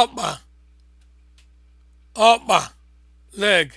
ọkpa ọkpa leg